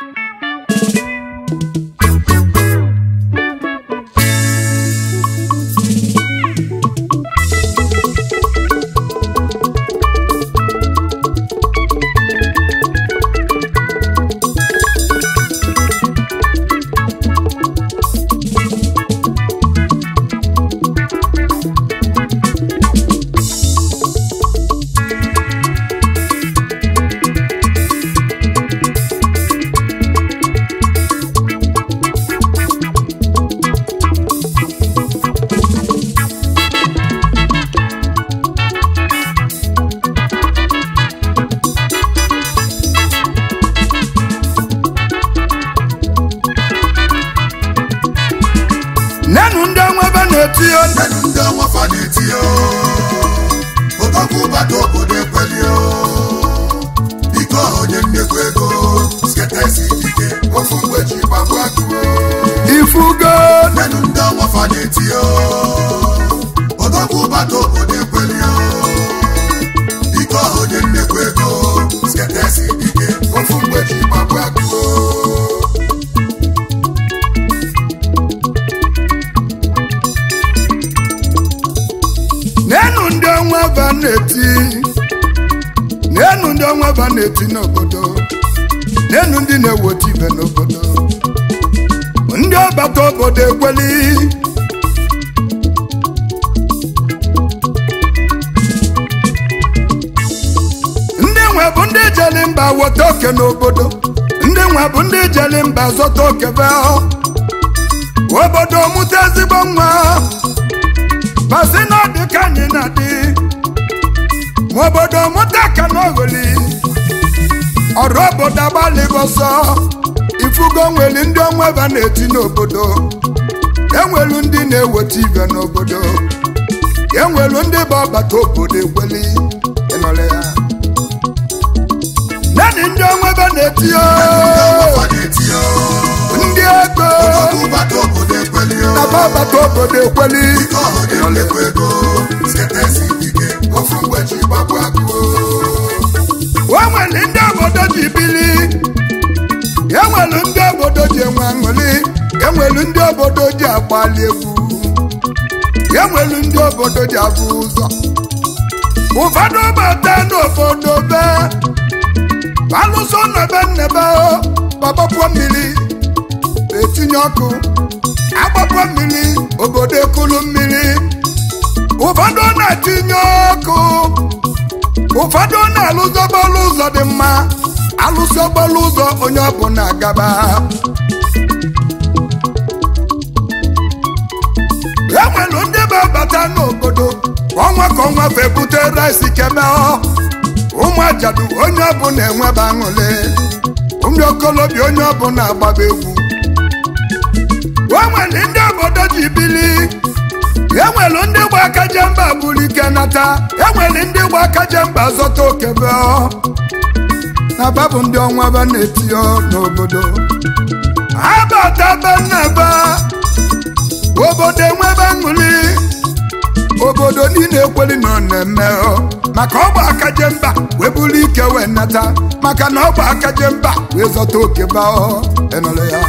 Thank you. na-eti n'obodo n'elu ndị na-eweta ibe n'obodo ndị ọbata obodo ekweli ndị nwe bụ ndị jeli mba weta oke n'obodo ndị nwe bụ ndị jeli mba zọta oke be obodo mụta ezigbo nwa basi na ọdị ka anyị na-adị obodo ka ọrụ obodo agbalịbụ ọsọ ifugo nwere ndị onweba na-eti n'obodo enwelu ndị na-eweta ibe n'obodo enwelu ndị bụ ọbata obodo ekweli ịnọrọ ya naanị ndị onweba na-eti ndị ego na ba ọbata obodo ekweli nwere ndị obodo ji bili nwere ndị obodo ji enwe aṅụli nwere ndị obodo ji agbali egwu nwere ndị obodo ji abụ ụzọ ụfọdụ bata n'obodo be alụso nebe nnebe gbapapụọ mmiri etinye ọkụ agbapụọ mmiri obodo ekulu mmiri ụfọdụ na-etinye ọkụ ụfọdụ na-alụzi ọgbọlụ ụzọ dị mma alụsị ọgbọlụ ụzọ onye ọbụ na-agaba e nwere ndị na n'obodo ọnwa ka ọnwa fe bute rice keme ụmụ ajadu onye na enweba aṅụle ụmụ okolobịa onye na agbaba egwu e nwere ndị obodo ji bili e ndị jemba buru ike nata e nwere ndị gba aka jemba zọta okebe na babụ ndị ọnwa ba na-eti n'obodo ha bata banaba obodo enwebe aṅụli obodo niile ekweli nọ na-eme maka ọ bụ aka jemba wee buru ike wee nata maka na ọ bụ aka jemba wee zọta okebe enọrọ e ya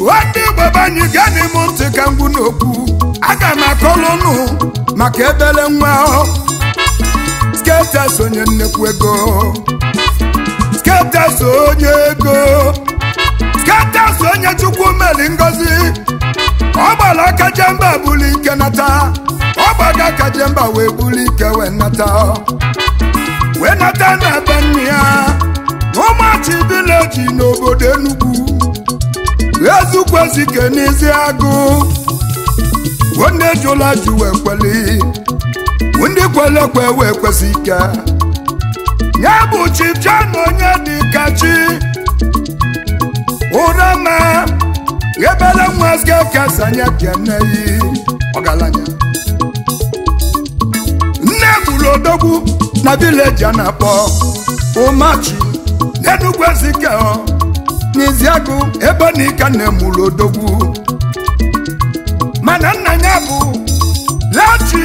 nwanne igbo banyị gaa n'ịmụ ntị ka ngwu n'okwu aga m akọlụ maka ebele nwa skeptas onye nnekwu ego skeptas onye ego skeptas onye chukwu meli ngozi ọ gbara kaje jemba buli ike nata ọ gbaga kaje jemba wee buli ike wee nata wee nata na be nne ya n'ụmụachi n'obodo Enugu ezukwu ezike n'ezi agụ onye jula jụ wee kweli ndị kwele kwe wee kwesị ike ya bụ chi bịa onye dị ka chi ụra ma ebere nwa skekesa anya keneyi ọgaranya nne gburu odogwu na vileji a na-akpọ ụmachi n'enugwu ezike ebe na ike nne mana nna ya bụ lati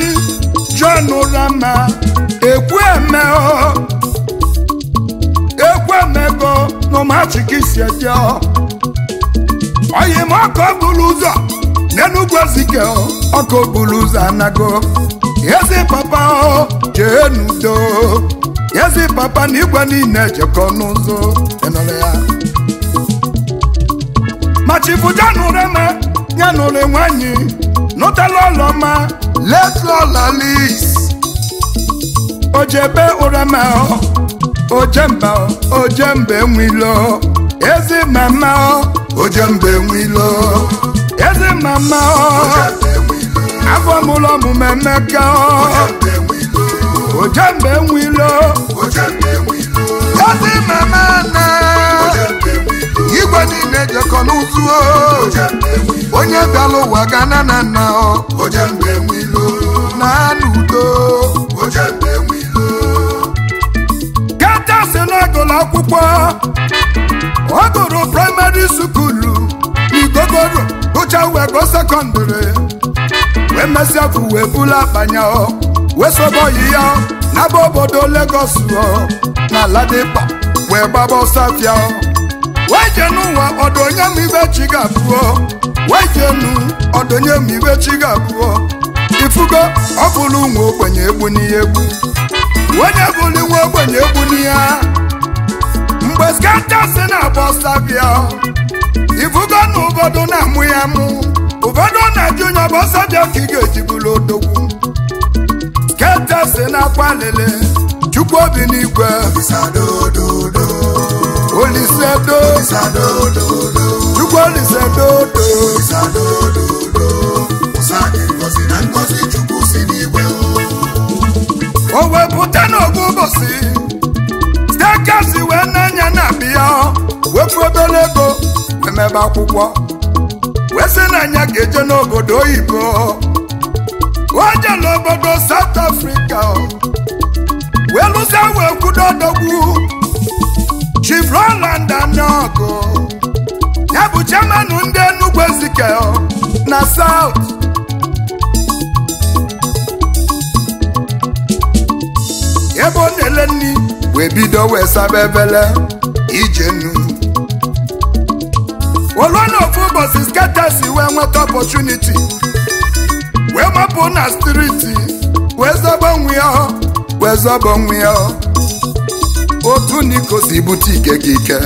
John Rama ekwemego n'ụmụachikisi eje oyim ọkọ buru ụzọ n'enugwu ozike ọkọ buru ụzọ anago ezi papa jee n'udo ezi papa na igwe niile ejekọ n'ụzọ ya machibu John Rama ya nụrụ nwanyị nụtala ọlọma letlalis ojebe ụrama ojemba ojembe nwilo ezi mama ojembe nwilo ezi mama afọ mụlọ ọmụmụ emeka ojembe nwilo ezi mama na igwe niile jekọ n'ụzụ oh. onye bịala ụwa ga na na nna oh. na n'udo kachasị n'agụlụ akwụkwọ ọ gụrụ praịmarị sukulu n'igogoro gụcha wego go sekọndịrị wee mesịa bụ wee bulu akpanya oh. wee sobe oyi ya n'aba obodo legos na Ladipa wee gbaba ọsọ wejenu ụwa ọdụnye m ibe chi ga-abụọ wejenu ọdụnye ga ifugo ọ nwa ogbenye egbu n'ihe egbu onye nwa ogbenye egbu n'ihe mgbe skata si na-abọ sabia ifugo na ụfọdụ na-amụ ya mụ ụfọdụ na-eji onye ọbọ ka ị ga-ejibụrụ odogwu si na akwa lele chukwu obi n'igwe Olisadodo o wee pụta n'ogbu ụbọchị stekesi wee na na bịa wepụ mebe akwụkwọ wee sị na ga-eje n'obodo oyibo o je n'obodo South Africa wee lụsa wee kwudo Chief Roland Anyaoku ya bụ chairman ndị Enugu Ezike na South ebe ọ na-ele nri wee bido wee saba ebele ije nnu olu na ofu ụbọchị skatesi wee nweta opọtuniti wee mapụ na striti wee zobo nwe ya wee zọbọ nwe ya otu niko si bute ike gị ike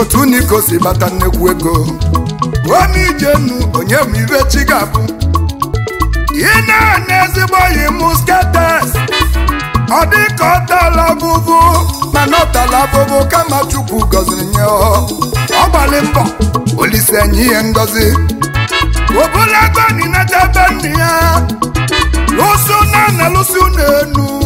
otu niko si bata nnekwu ego omijenu onye bụ ire chi ga ị na-ana ezigbo yi musketes ọ dị ka ọ mana ọ tala kama chukwu gọziri nye ọ gbalị mbọ olise enye ihe ngozi obụla na ninata be nna ya lụsụ na na enu.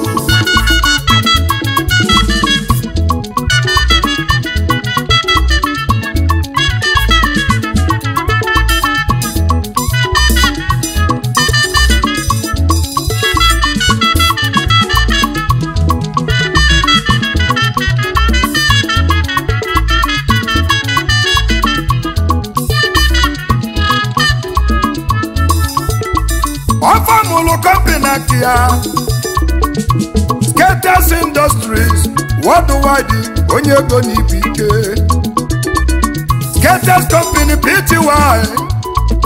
ọfamụlụ kọmpịna nke ya Skaters Industries worldwide onye ego na ike Skaters Company Pty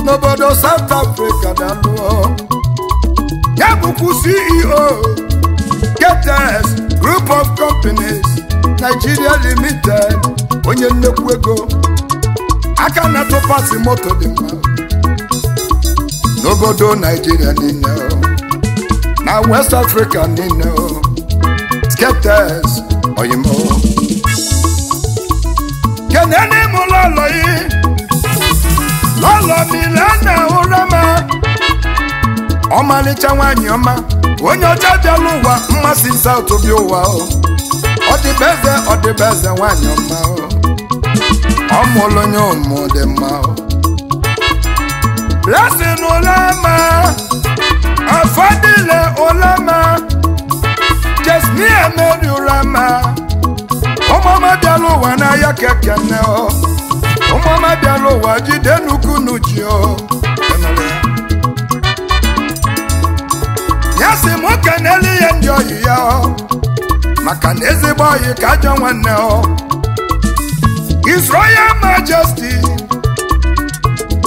n'obodo South Africa na lụọ ya bụkwu CEO Skaters Group of Companies Nigeria Limited onye nnekwu ego aka na-atụkwasị moto dị mma go n'obodo Nigeria niile now west africa niile skeptics oyinbo kene n'ime ụlọ ụlọ yi lọlọ mile na ụra ma ọmalịcha nwanyị ọma onye ọcha bịala ụwa mmasị saut bi ụwa ọdịbeze ọdịbeze nwanyị ọma ọmụlụ onye ụmụ dị mma o blessing ulama afadile ulama jesmia meri ulama ọmọọmọ bịara ụwa n'ahịa keke nne ọ ọmọọmọ bịara ụwa jide nnukwu n'uchi ọ ya si mụ keneli ya ndị oyi ya ọ maka na ezigbo oyi ka ajọ ọ Majesty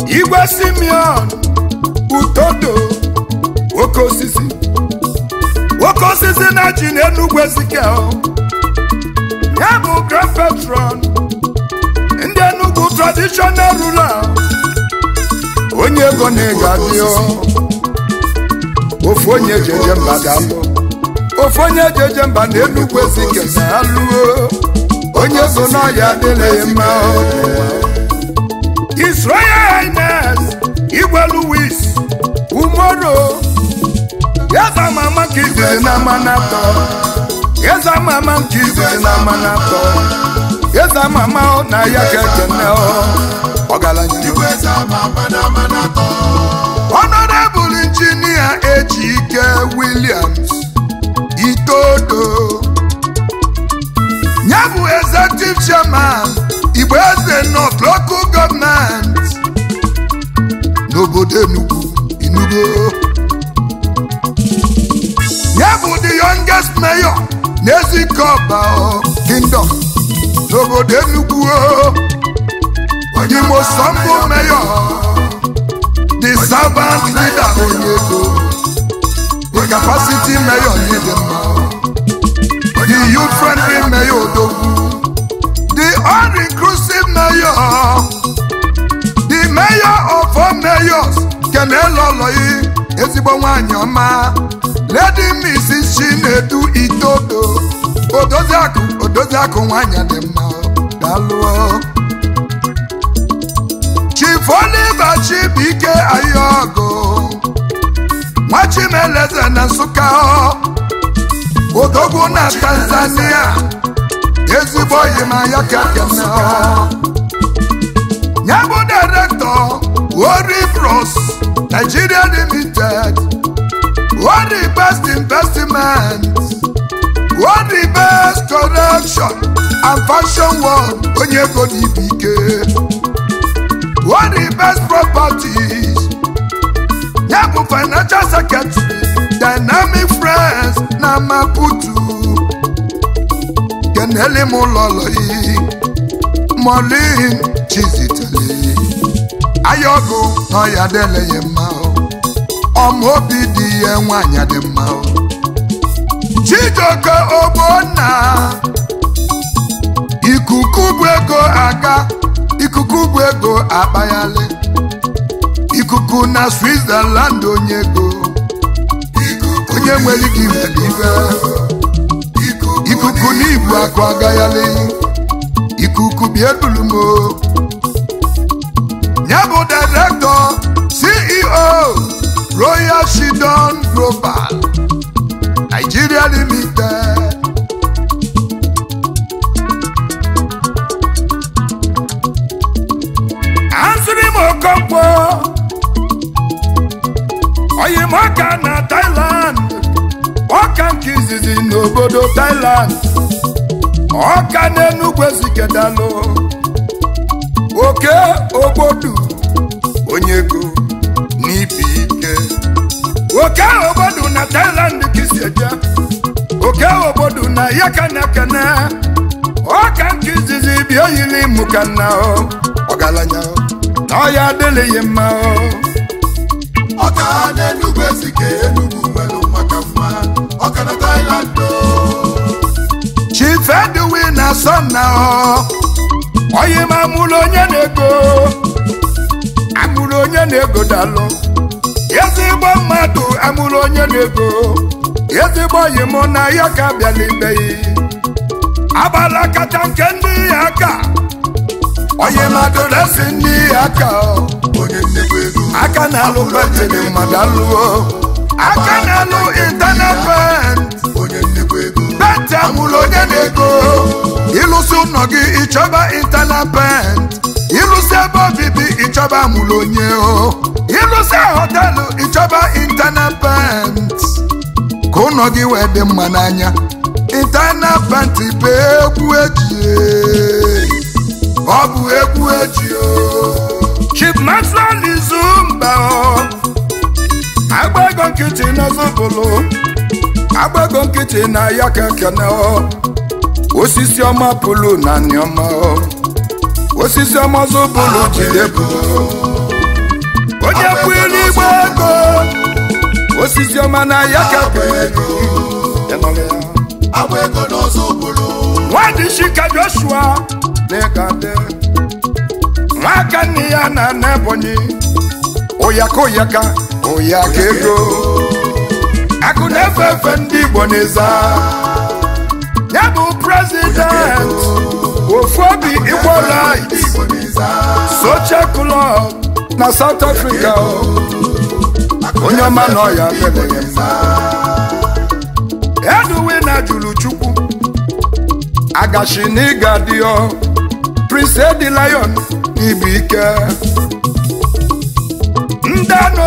igwe Simeon utodo nwoke osisi nwoke osisi na ji n'enugwu ezike ya bụ grand patron ndi enugwu traditional rural onye ego na-ego adị ofu onye ejeje mba ga-abụ ofu onye ejeje mba na enugwu ezike na aluo onye ego n'ọhịa adịghị ya. His Royal Highness Igwe Louis Umodo Eze mama nke igwe na manapọ Eze mama nke igwe na manapọ Eze mama ọ na ya ka ekene ọ ọgaranya Honorable Engineer Ejike Williams Itodo ya Executive Chairman igbo eze nọ local gọọmenti n'obodo Enugu Enugu ya bụ the youngest mayor n'Ezikọba kingdom n'obodo Enugu Imo Sambo mayor the servant leader onye Onyego the capacity mayor Chidimma the youth friendly mayor Odogwu all-inclusive mayor the mayor of all mayors keneloloyi ezigbo nwanyị ọma lady mrs chinedu itodo odoziakụ odoziakụ nwanyị dị mma dalụọ chief oliver chibike ayọgo nwachimeleze na nsụka odogwu na tanzania ezigbo oyi ma ya kekene na. bụ direktọ Ori Bros Nigeria Limited Ori Best Investment Ori Best Correction and Fashion World onye go di ibe ike Best Properties ya bụ Financial Secretary Dynamic Friends na Maputo keneli m ụlọlọyi mọlin chizitele ayọgụ n'ọya deleghị mma ọmaobi dị ihe nwanyị dị mma Chijioke Ogbonna ikuku bụ ego aga ikuku bụ ego akpaghalị ikuku na Switzerland onye ego onye nwere ike iwe ikuku n'ibu akụ agaghalị ikuku bịa ebulu ya bụ direktọ CEO Royal Shidon Global Nigeria Limited asịrị m Okonkwo oyi na Thailand ọka nke izizi n'obodo Thailand ọka n'Enugwu ezigedalụ oke obodo onye ego n'ibi ike oke obodo na Thailand ka isi eje oke obodo na kanakana ọka nke izizi bịa oyili mụkana ọgaranya na ọya adịlịghị mma ọka n'Enugwu ezike enu fedwi na sọna onye ma amụrụ onye na-ego amụrụ onye na-ego dalụ ezigbo mmadụ amụrụ onye na-ego ezigbo oyi mụ na ya ka bịala ibeghị kacha nke ndị ya aka onye mmadụ na-esi ndị ya aka aka na-alụ mmadụ aka na-alụ pent amụlụ onye na-ego ịlụsị ụnọ gị ịchọba intana pent ịlụsị ebe obibi ịchọba amụlụ onye o ịlụsị họtelụ ịchọba intana ka ụnọ gị wee dị mma n'anya intana pent bụ egwu eji e. ọ bụ egwu eji o Chief Maxwell Izumba nkịtị n'ọzọ bụlụ agbago nkịtị na ya ka kene osisi ọma pụlụ na anyọma osisi ọma zụbụlụ jide bụ onye bụ igbo ego osisi ọma na ya ka nwadị shika joshua na-egade nwaka nne ya na na ebonyi oyaka oyaka oyaka ego akụ na-efe efe ndị Igbo n'ịza ya bụ prezident ofu obi Igbo right na South Africa onye ọma nọ ya eduwe na jụrụ Chukwu agachi n'ịga dịọ Prince Edi Lion Igbo ike ndị anụ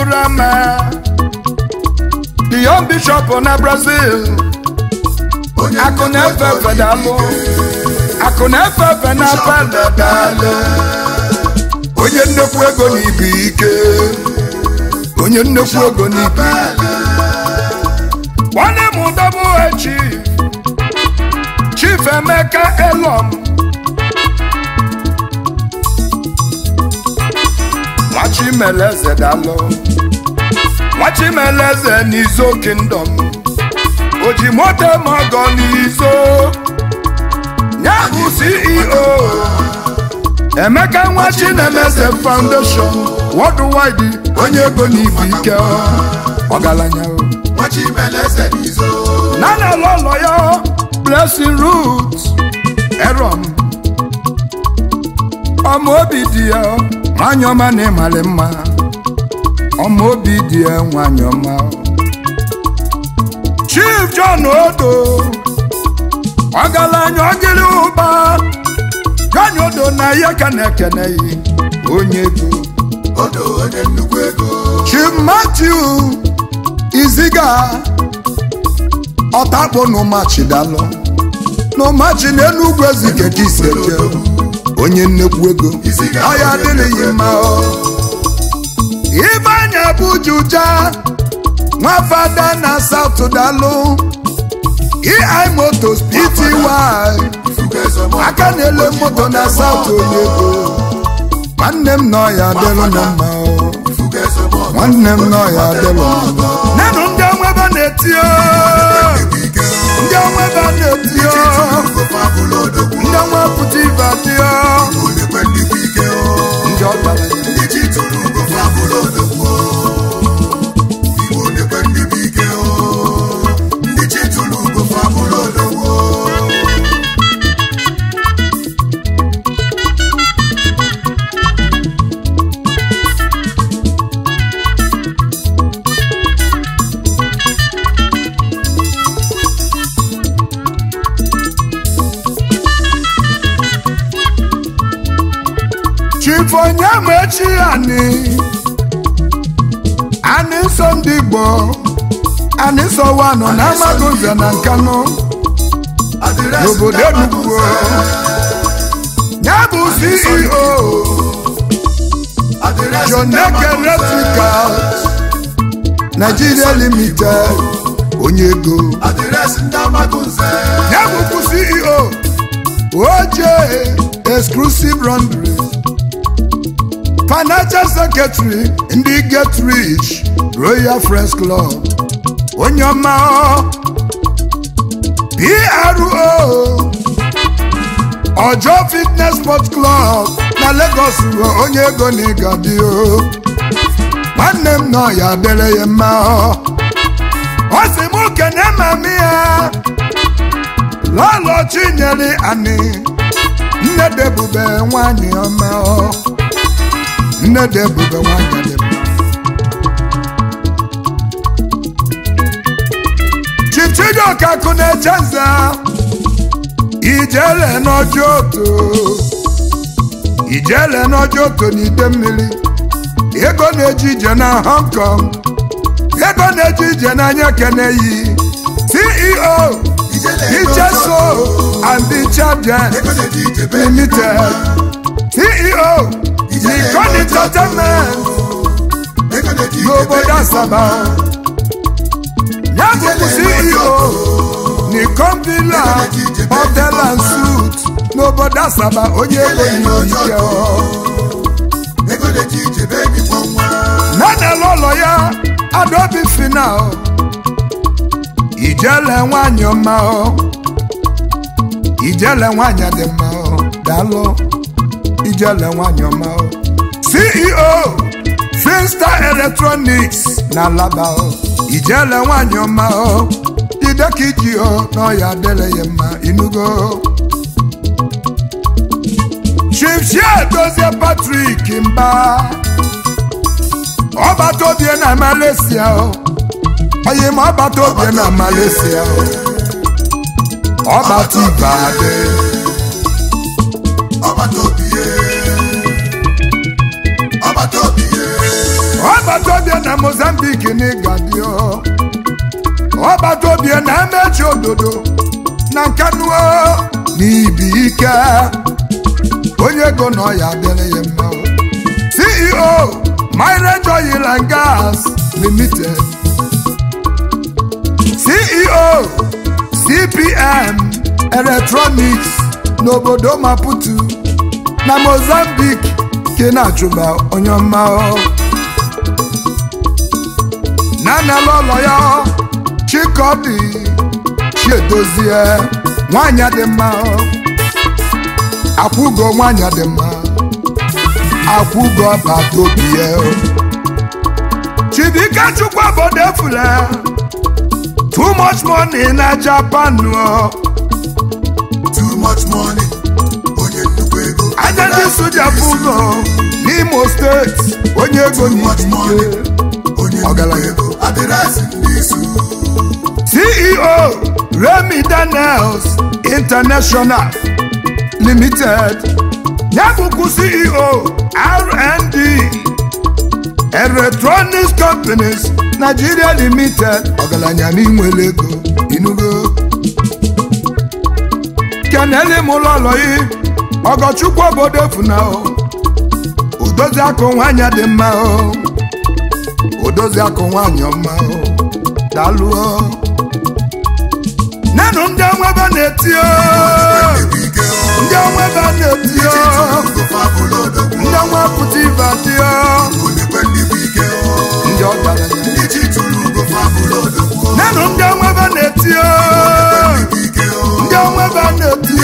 Burama the young bishop na Brazil akụ na-efe efe dalụ akụ na-efe efe na onye nnekwu ego n'ikpe ike onye nnekwu ego n'ikpe ike nwanne m double echi chief Emeka Elom nwachi mere nwachimeleze n'izo kingdom o ji n'izo Nyahu CEO Emeka nwa Foundation worldwide onye ego n'ibu ike ọgaranya n'izo. na-ele ụlọ ya Blessing Roots Eron ọma obi dị ya manyọma na mma Ọmụ obi dị enwe nwanyị ọma Chief John Odo ọgaranya ọgịrị ụba John Odo na ya ka na-ekene ya onye ego Odo onye ego Chief Matthew Iziga ọtakpo n'ụmachi dalụ n'ụmachi n'Enugwu ezike ka isi eje onye nnekwu ego ọya adịghị mma ọ Ibanya bujuja nwa fada na South i motos pt y aka na-ele moto na South Oyego nwanne m nọ ya adịlụ na mma nwanne m nọ ya adịlụ ndị ọnwebe na-eti ndị na-eti ndị ọnwa pụta ibe adịọ Nàìjíríà ni a ní sọ ndị Igbo a ní sọ Wano na Amagunza na Nkanu n'obodo Enugu ya bụ CEO Joneke Electrical Nigeria Limited onye ego ya bụkwu CEO OJ exclusive run financial secretary ndị get rich royal friends club onye ọma pro ọjọ fitness sport club na lagos ruo onye ego na ịgadi o nwanne m nọ ya dere ya mma ọ sị m kene mami ya lọlọ chinyere ani nne debube nwanyị ọma ọ nne dị ebube nwanyị dị mma chichido ọkakụ na-eche nza ijele n'ọjọ oto ijele n'ọjọ oto na ide mmiri ego na-eji ije na Hong Kong ego na-eji ije n'anya keneyi CEO Icheso and the Champion Limited CEO Nikon Entertainment n'obodo Asaba ya bụbu CEO Nikon Villa Hotel and Suit n'obodo Asaba onye ego ike nanele ụlọ ya Adobe Final ijele nwanyị ọma ijele nwanyị dị mma daalụ Ijele nwanyị ọma CEO Finstar Electronics na Alaba Ijele nwanyị ọma ideka iji n'ọya n'o ya mma inugo Chifchia Dozie Patrick Mba ọbata obie na Malaysia onye ma ọbata obie na Malaysia ọbata ibe adị bikini ga-adị ọgbata obie na emechi ododo na nkanuo na bi ike onye ego nọ ya adịrị ya mma CEO Mineral Oil and Gas Limited CEO CPM Electronics n'obodo Maputo na Mozambique ke na-achụba onye ọma nanelụ ọlọ ya chikọdị chiedozie nwanyị dị mma akwụgo nwanyị dị mma akwụgo bata obi ya chibike chukwu obodo efule too much money na Japan too much money onye nnukwu anya ndị soja bụ ụlọ n'Imo steeti onye ego ọgara ego. adịresị n'izu CEO Remi Daniels International Limited ya CEO R&D Electronics Companies Nigeria Limited ọgaranya n'inwe ego inugo kenele m ụlọlọyi ọgọchukwu obodo funao odozi akụ nwaanyị dị mma o edozi akụ nwanyị ọma daalụ nenụ ndị nwebe na-eti ndị nwebe na-eti ndị nwepụta ibe dị ndị ọgaranya nenụ ndị nwebe na-eti ndị nwebe na-eti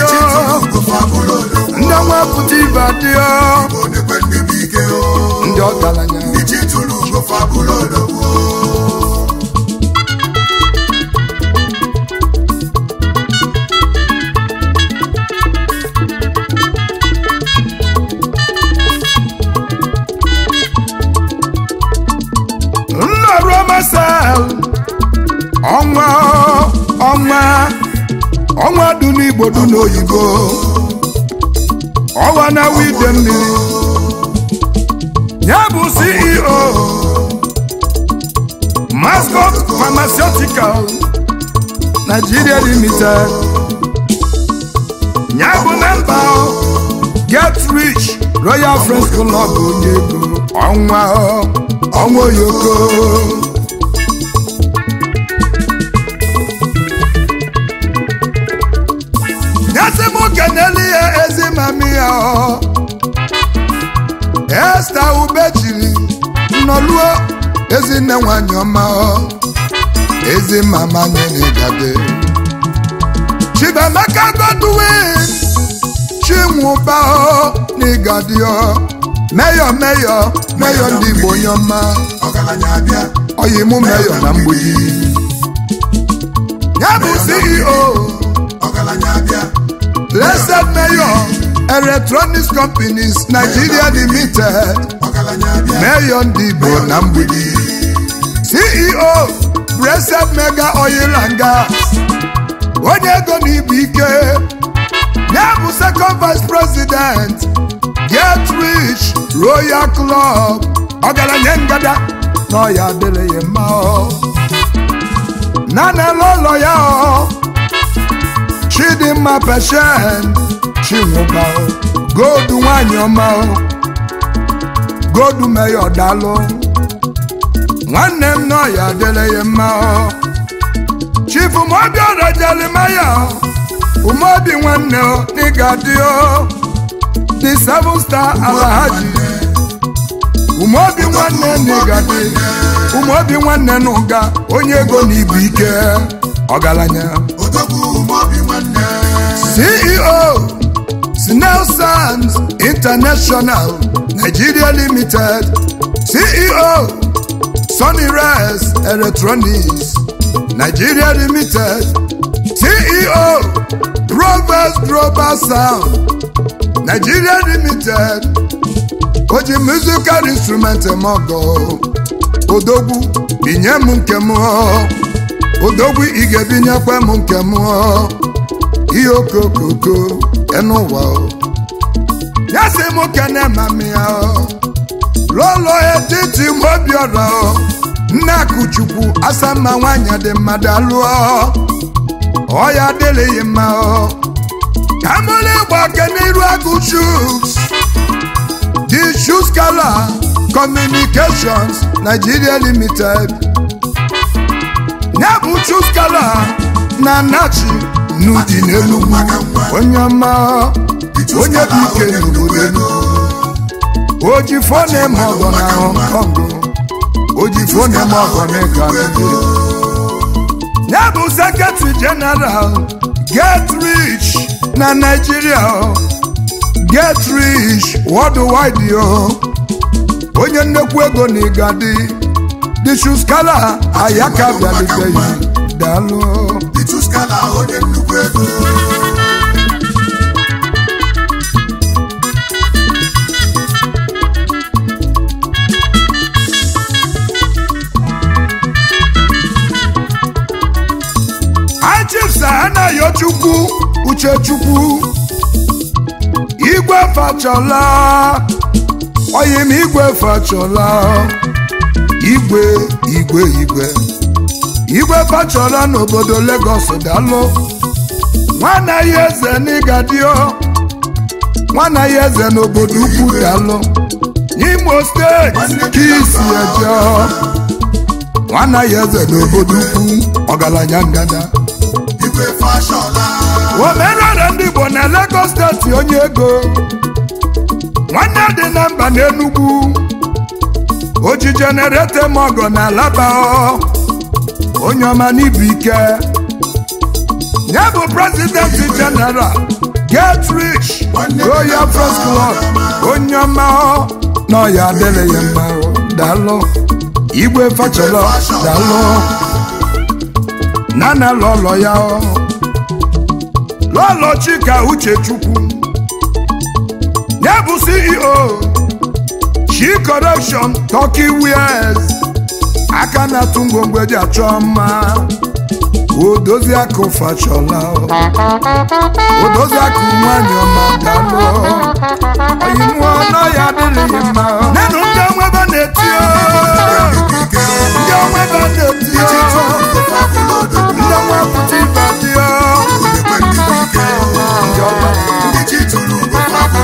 ndị nwepụta ibe dị ndị ọgaranya fagúlò lóko. nnọrọ masal ọnwa ọnwa ọnwa dị n'igbo dị n'oyibo ọwa na wide mmiri ya bụ ceo Mascot Pharmaceutical Nigeria Limited ya bụ na mba Get Rich Royal French Club onye ego ọnwa oh. ọnwa oyoko keneli ya e ezi mami ya oh. ọ Esther Ubejiri nọluo ezinne nwanyị ọma ezi mama nyere gade Chibamaka Godwin Chinwụba ọ. meyọ meyọ meyọ ndị Igbo onye ọma ọyimụ meyọ na mgbidi ya bụ CEO Blessed meyọ Electronics Companies Nigeria Limited mayor ndị Igbo na mgbidi CEO Bresel Mega Oil and Gas onye ego na ibu ike ya bụ second vice president get rich royal club ọgaranya ngada nọ ya adịrị ya mma na na ụlọ ya Chidimma Patient Chinwụba gold nwanyị ọma godu meyo dalụ nwanne m n'ọya dịle ya mma Chief umabi Umobi Ora Jeremiah Umobi nwanne n'ịga dị o the seven star Alhaji Umobi nwanne n'ịga dị Umobi nwanne n'ụga onye ego na ibu ike ọgaranya CEO Snail Sands International Nigeria Limited CEO Sunny Res Electronics Nigeria Limited CEO Robert Robert Sound Nigeria Limited oji musical instrument mọgọ odogwu binye m nke Ige Binye ị ga-ebinyekwa m nke m ihe ya sị m kene mami ya lụọlụ etiti mobiọra nne akụchukwu asamma nwanyị dị mmadụ alụọ ọya adịlịghị mma ka mụrụ ịgba n'iru agụ shus di shus kala communications nigeria limited ya bụ shus kala na nachi n'ụdị n'elu onye ọma onye bụ ike n'obodo oji fone ma ọgọ na Hong Kong oji fone ma ọgọ na Canada ya bụ sekretari jeneral get rich na Naịjirịa get rich worldwide yo onye nnekwu ego na igadi dichuskala ayaka bịaliteghi daalụ chukwu uchechukwu igwe fachola oyi m igwe fachọla igwe igwe igwe igwe fachola n'obodo Lagos dalụ nwanne ya eze n'ịgadio nwanne ya eze n'obodo ukwu dalụ n'Imo steeti ka isi eje nwanne ya eze n'obodo ukwu ọgaranya ngada omenala ndị bụ na Lagos steeti onye ego nwanne dị na mba n'enugwu oji jenereta ma ọgọ na alaba onye ọma n'ibu ike nye bụ prezidenti jeneral get rich Royal first Club onye ọma nọ ya adịla ya mma dalụ igwe fachala na nana lọlọ ya ọ Tolochika Uchechukwu ya bụ CEO She Corruption Turkey Wears aka na-atụ ngwongwo eji achọ mma odozi akụ fachọla odozi akụ nwanyị ọma dalụ oyimụọ nọ ya adịghị mma nenu ndị onwebe na-eti ndị onwebe na-eti ndị onwe pụta ibe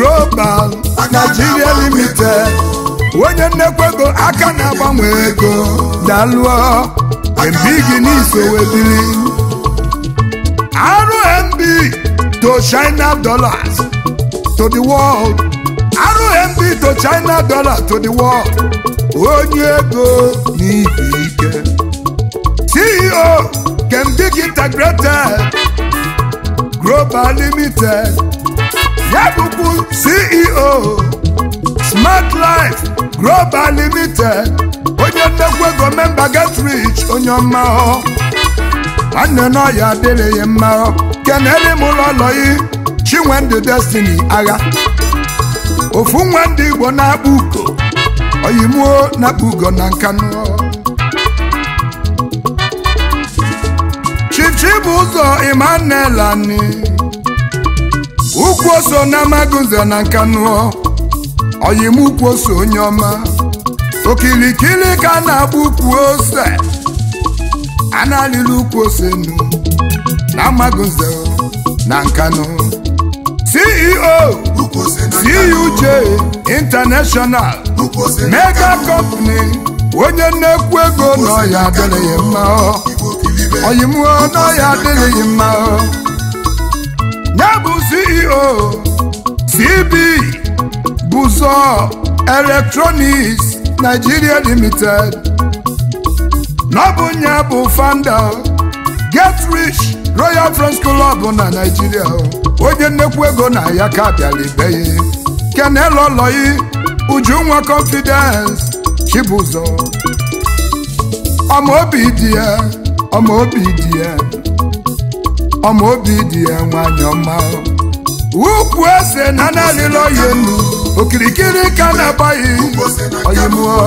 global Nigeria limited onye nnekwu ego aka na-agbanwe ego dalụọ mbigi n'isowebiri rmb to china dollars to the world rmb to china dollars to the world onye ego n'ibi ike ceo kembig e integrated global limited ya CEO Smart Life Global Limited onye nnekwu ego memba rich onye ọmahọ nwanne n'ọya adịrị ya mma kenere m ụlọ ọlọyi ndị Destiny agha ofu nwa ndị Igbo na-akpụ ugo oyimuo na-akpụ ugo na nkanụ Chief Chibuzor Emmanuel ukwu oso na magunze na nkanuo oyim ukwu oso onye ọma okirikiri ka a na-agba ukwu ose a na alịrị ukwu ose nu na magunze na nkanu ceo cuj e international mega company onye nnekwu ego n'ọya adịghị mma oyimuo n'ọya adịghị mma ya ceo cb buzo electronics nigeria limited na bụ fanda getrich royal french club na nigeria onye nnekwu ego na ya ka bịara ibe ya ujunwa confidence chibụzọ obi dị ya ọmaobi dị ya obi dị ya nwanyị ọma ukwu ese na na-alịla oyenu okirikiri ka na-abaghị oyimuo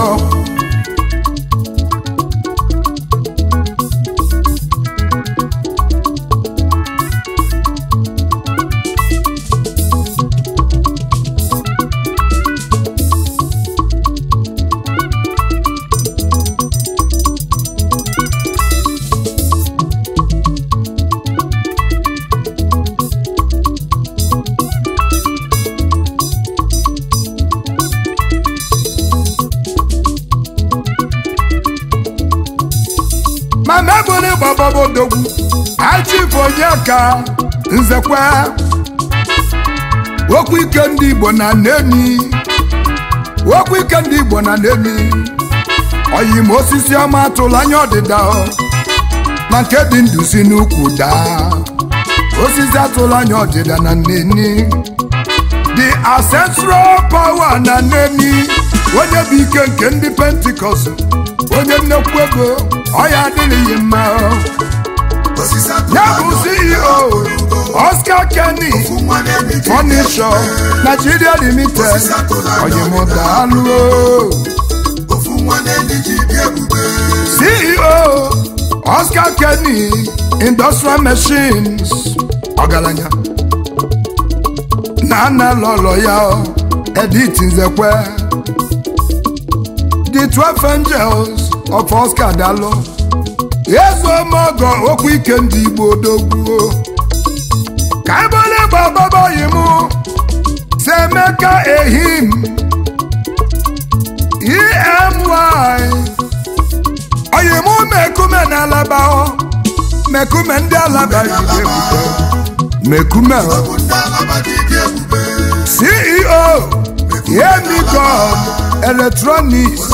gbababodogwu achịfụ onye ka nzekwa okwu ike ndị Igbo na nemi okwu ike ndị Igbo na nemi oyim osisi ọma atụla anya ọdịda na nke dị ndụ n'ukwu daa osisi atụla anya ọdịda na nneni the ancestral power na nneni onye bụ ike nke ndị pentikọst onye nnekwu ego ọyà adìrìyẹ mọ. yẹ́bù CEO Oscar Kenny furniture Nigeria limited ọ̀yẹ̀mọ̀ dàálù o. CEO Oscar Kenny industrial machines ọ̀gàlànyà nana lọ́lọ́ ya ọ ẹ̀dí the twelve angels. ọfọ Oscar dalụ ọgọ okwu ike ndị Igbo dogbuo ka ebele gbababoyi e m si Emeka ehim emy Ọyịmụ mekume na alaba mekume ndị alaba mekume CEO yemi Electronics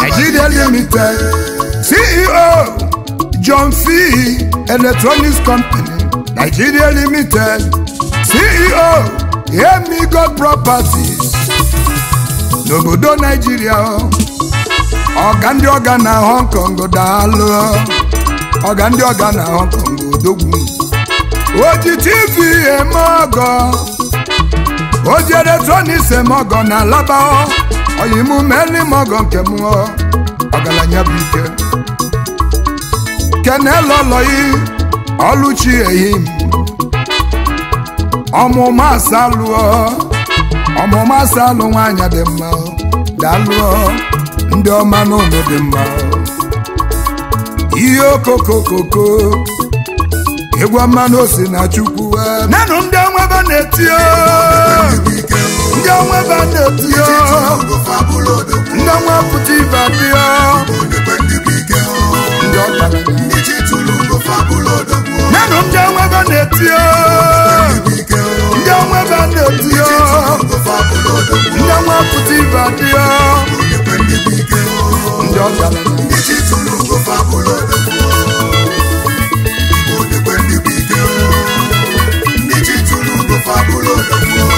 Nigeria Limited CEO John F. Electronics Company Nigeria Limited CEO Emigo Properties n'obodo Nigeria ọga ndị ọga na Hong Kong daalụ ọga ndị ọga na Hong Kong odogwu oji TV eme ọgọ oji electronics eme ọgọ na alaba ọyịmụ meli m ọgọ nke mụọ ọgaranya bụ ike kenelọlọyi ọlụchi ehi m ọmụma asalụọ ọmụma asalụ nwaanyị dị mma dalụọ ndị ọma n'ụlọ dị mma ihe okokokoko egwu ọma na na chukwu e. nanụ ndị na-eti ndị ọnwa ebe a na-etinye ndị ọnwa pụta ibe adịọ menụ ndị ọnwa ebe a na ya, ndị ọnwa ebe a na ya, ndị ọnwa pụta ibe adịọ ndị ọbịa fabuloso.